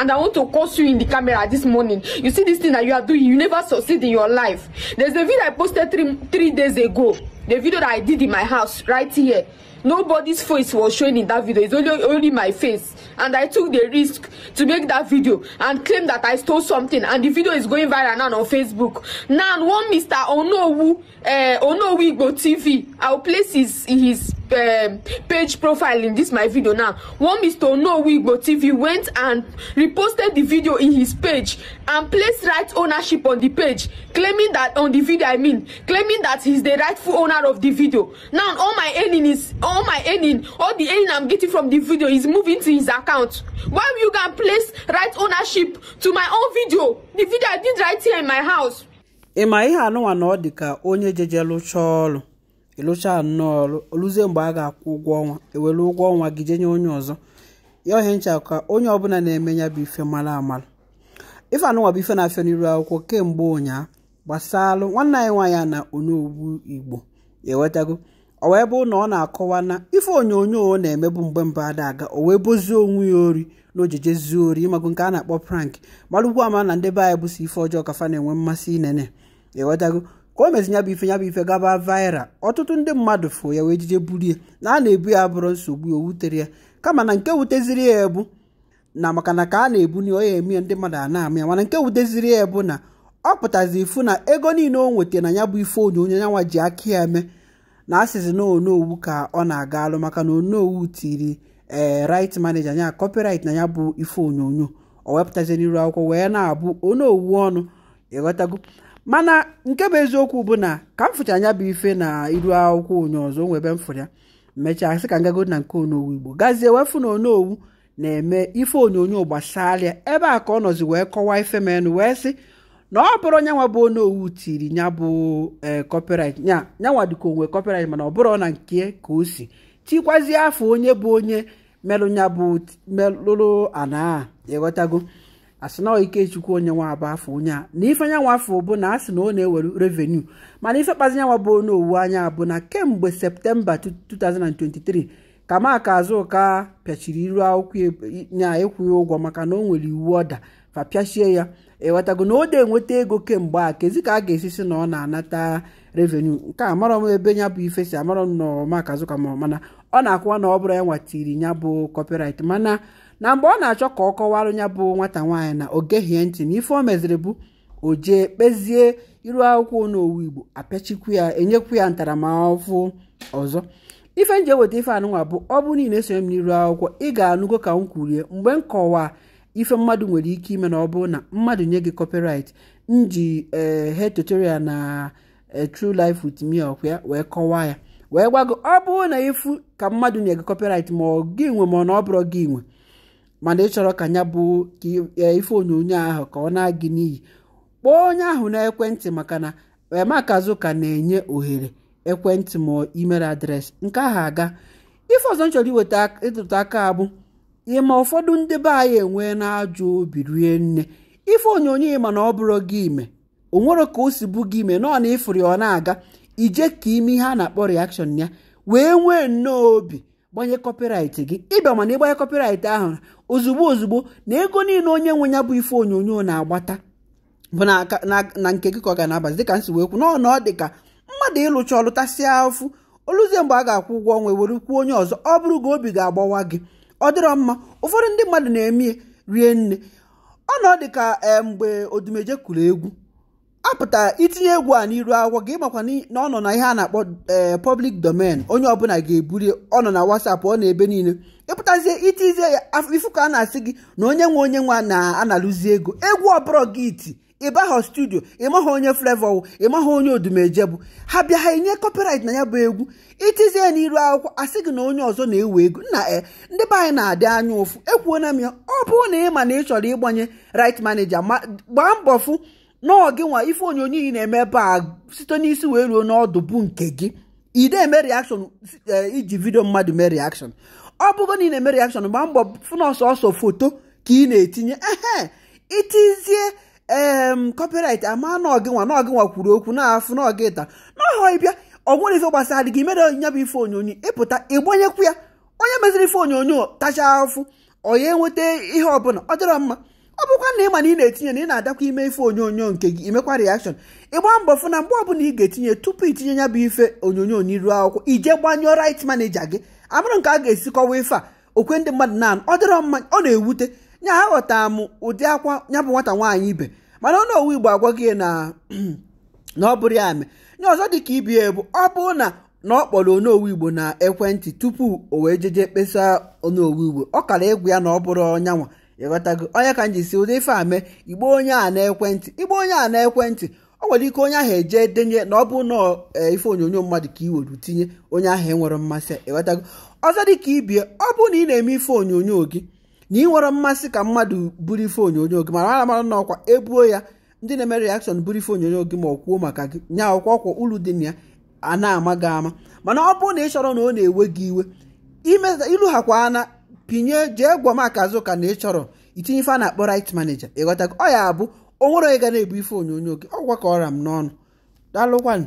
and I want to curse you in the camera this morning. You see this thing that you are doing, you never succeed in your life. There's a video I posted three three days ago. The video that I did in my house right here. Nobody's face was shown in that video. It's only only my face. And I took the risk to make that video and claim that I stole something. And the video is going viral now on Facebook. Now one Mr. Onowu uh, Onowu go TV. I'll place his his um, page profile in this my video now one mr onowigbo tv went and reposted the video in his page and placed right ownership on the page claiming that on the video i mean claiming that he's the rightful owner of the video now all my earning is all my earning all the earning i'm getting from the video is moving to his account why you can place right ownership to my own video the video i did right here in my house. ị ma ihe anụnwa na ọ dị ka onye jejelu chọọ ọrụ ịlụcha nnọọ ọrụ oluzie mgbe a ga-akwụ ụgwọ ọnwa ewere ụgwọ ọnwa gị jenye onye ọzọ ya ohe ncha ka onye ọbụla na-eme ya bụ ife mara amara ife anụnwa bụ ife na-afịa n'iru akwụkwọ kemgbe ụnyaa gbasalụ nwanne anyị nwaanyị a na onye igbo ewetago o wee bụ na ọ na-akọwa na ife onyonyo ọ na-emebu mgbe mba ada aga o wee bozie onwe ya ori na ojijezuo ori ịmago nke a na-akpọ prank mara ugbu ama na ndị be anyị bụ ife ọjọọ kafa na-enwe mmasị inene ewetago ka o mezi ya bụ ife ya bụ ife gaba vaịral ọtụtụ ndị mmadụ fụ ya wee buru ya na a na-ebu ya bụrụ nsogbu o wutere ya kama na nke wuteziri ya ebu na maka na ka a na-ebu na onye eme ndị mmadụ a na ya mana nke wuteziri ya ebu na ọ pụtazi ifu na ego niile o nwetara na ya bụ ife onyonyo yanwa ji aka ya eme na asịzi na onowu ka ọ na-aga alụ maka na onowu tiri ee eh, rit manager ya kọpịrit na ya bụ ife onyonyo o wepụtazi n'iru akwụkwọ wee na-abụ onowu ọnụ ịghọtago mana nke bụ eziokwu bụ na ka m fụcha anya bụ ife na iru akwụkwọ onye ọzọ onwe ebe ya mechaa sị ka ngago na nke onowu igbo gazie wefu na onowu na-eme ife onyonyo gbasara ebe a ka ọ nọzi wee kọwaa ife menụ wee sị na ọ bụrụ nyanwa bụ onowu tiri nya bụ ee eh, nya nyanwa dịka onwe copyright mana ọ bụrụ na nke ka o si tikwazie afọ onye bụ onye melụ nya bụ melụrụ ana ịghọtago asị na ikechukwu onye nwa abụ afọ onye a na ife anyanwụ afọ bụ na asị na ọ na-ewere revenu mana ife kpazi nyanwa bụ onye owu anya bụ na kemgbe septemba 2023 ka maka azụka pịachiri iru akwụkwọ e, ya ịkwụghị ụgwọ maka na ọ nwere iwu ọda fa pịachie ya ewetago na o de enweta ego kemgbe a kezi ka a ga-esi si na ọ na-anata revenu nke a amarọ m ebe ya bụ ife si amarọ m na maka azụka mana ọ na-akwụwa na ọ bụrụ ya nwatiri ya bụ kọpịrait mana na mgbe ọ na-achọ ka ọ kọwara ya bụ nwata nwaanyị na ogehie ntị na ife o meziri bụ o jee kpezie iru akwụkwọ n'owu igbo apịachikwu ya enyekwu ya ntaramahụhụ ọzọ ife nje eweta ife anụnwa bụ ọ bụ niile esonye m n'iru akwụkwọ ị ga-anụgo ka m kwurie mgbe m kọwa ife mmadụ nwere ike ime na ọ bụ na mmadụ nye gị copyright m ji ee eh, tutorial na eh, True Life with Me ọkwa ya wee kọwaa ya wee gwago ọ bụrụ na ifu ka mmadụ nye gị kọpịrit ma ọ gị nwe ma ọ na ọ bụrụ gị nwe mana ịchọrọ ka ya bụ e, ife onyonyo ahụ ka ọ na-agị n'iyi kpọọ onye ahụ na ekwentị maka na emakazuka na-enye ohere ekwentị ma email adreesị nke ahụ aga ife ọzọ m chọrọ iweta ịtụtụ aka abụ ịma ụfọdụ ndị be anyị enwe na-ajụ obi rie nne ife onyonyo ịma na ọ bụrụ gị ime o nwere ka o si bụ gị ime nọọ na ịfụrụ ọ na-aga ije ka ime ihe a na-akpọ reaction ya wee nwee nnọọ obi gbanye kọpịraịtị gị ịbịa mana ịgbanye kọpịraịtị ahụ ozugbo ozugbo na ego niile onye nwe ya bụ ife onyonyo na-agbata bụ na nke gị ka ọ ga na-abazi dịka nsi wee kwu na ọ dị ka mmadụ ịlụcha ọlụtasịa ụfụ oluzie mgbe a ga-akwụ ụgwọ ọnwa were kwuo onye ọzọ ọ bụrụ ga obi ga-agbawa gị ọ dịrọ mma ụfọdụ ndị mmadụ na-eme rie nne ọ na dị ka eh, mgbe odumeje kụrụ egwu apụtara itinye egwu a n'iru akwụkwọ gị makwa na ọ nọ na ihe a na-akpọ eh, public domain onye ọbụla ga-eburi ọ nọ na WhatsApp ọ na-ebe niile ịpụtazie itizie ya ifu ka a na-asị gị na onye nwe onye nwe na-analụzi ego egwu ọbụla gị iti ịbaghọ studio ịmaghọ onye flevo ịmaghọ onye odumeje bụ ha bịa ha enye copyright na ya bụ egwu itizie n'iru akwụkwọ asị gị na onye ọzọ na-ewe ego nna e ndị be anyị na-adị anya ụfụ ekwuona m ya ọ bụrụ na ị ma na ị chọrọ ịgbanye right manager ma gbaa mbọ fụ nọọ nwa ife onyonyo ị na-eme ebe a site n'isi wee ruo n'ọdụ bụ nke gị ị na-eme reaction eh, iji vidio mmadụ mee reaction ọ bụgo na ị na-eme reaction gba mbọ fụna ọsọ ọsọ foto ka ị na-etinye ehe itizie em copyright ama nọọgị nwa nọọgị nwa kwuru okwu na-afụ nọọgị ta n'ọhọ ịbịa ọ nwere ife gbasara gị mere nya bụ ife onyonyo ịpụta ịgbanyekwu ya onye meziri ife onyonyo tachaa afụ onye nweta ihe ọbụla ọ dịrọ mma ọ bụkwa na ị ma na ị na-etinye na ị na-adakwa ime ife onyonyo nke gị imekwa reaction ịgba mbọ fụ na mgbe bụla ị ga-etinye tupu itinye ya bụ ife onyonyo n'iru akwụkwọ ije gbanyụọ right manager gị amụrụ nke a ga-esikọwa ife a okwe ndị mmadụ na ọ dịrọ mma ọ na-ewute nya aghọta m ụdị akwa nya bụ nwata nwaanyị ibe mana ọ owu igbo agwa gị na na ọ bụrụ ya mee nye ọzọ dị ka ibi ebu ọ bụrụ na na ọ kpọrọ onowu igbo na ekwentị tupu o wee jeje kpesa onowu igbo ọ kara ịgwụ ya na ọ bụrụ ọnyanwa ịghọtago onye ka m ji si ụdị ife a mee igbo onye a na-ekwentị igbo onye a na o nwere ike onye ahụ eje denye na ọ bụ na e, ife onyonyo mmadụ ka i tinye onye ahụ enwere mmasị ịghọtago ọzọ dị ka ibie ọ bụ na ị na-eme ife onyonyo gị na ị nwere mmasị ka mmadụ buru ife onyonyo gị mara mara na ọkwa ebuo ya ndị na-eme reakshọn buru ife onyonyo gị ma ọ kwuo maka gị nya ọkwa ọkwa uru dị na ya a na-ama gị ama mana ọ bụ na ị chọrọ na ọ na-ewe gị iwe ilughakwa ana pinye jee gwa maka azụka na ị chọrọ itinye ife a na-akpọ right manager ịghọta ọ ya abụ o nwere onye ga na-ebu ife onyonyo gị ọgwa ka ọra m n'ọnụ daalụkwanụ